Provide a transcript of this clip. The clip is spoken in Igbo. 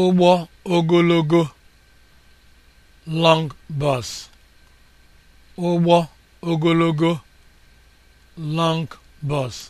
ụgbọ ogologo long bus ogologo long bus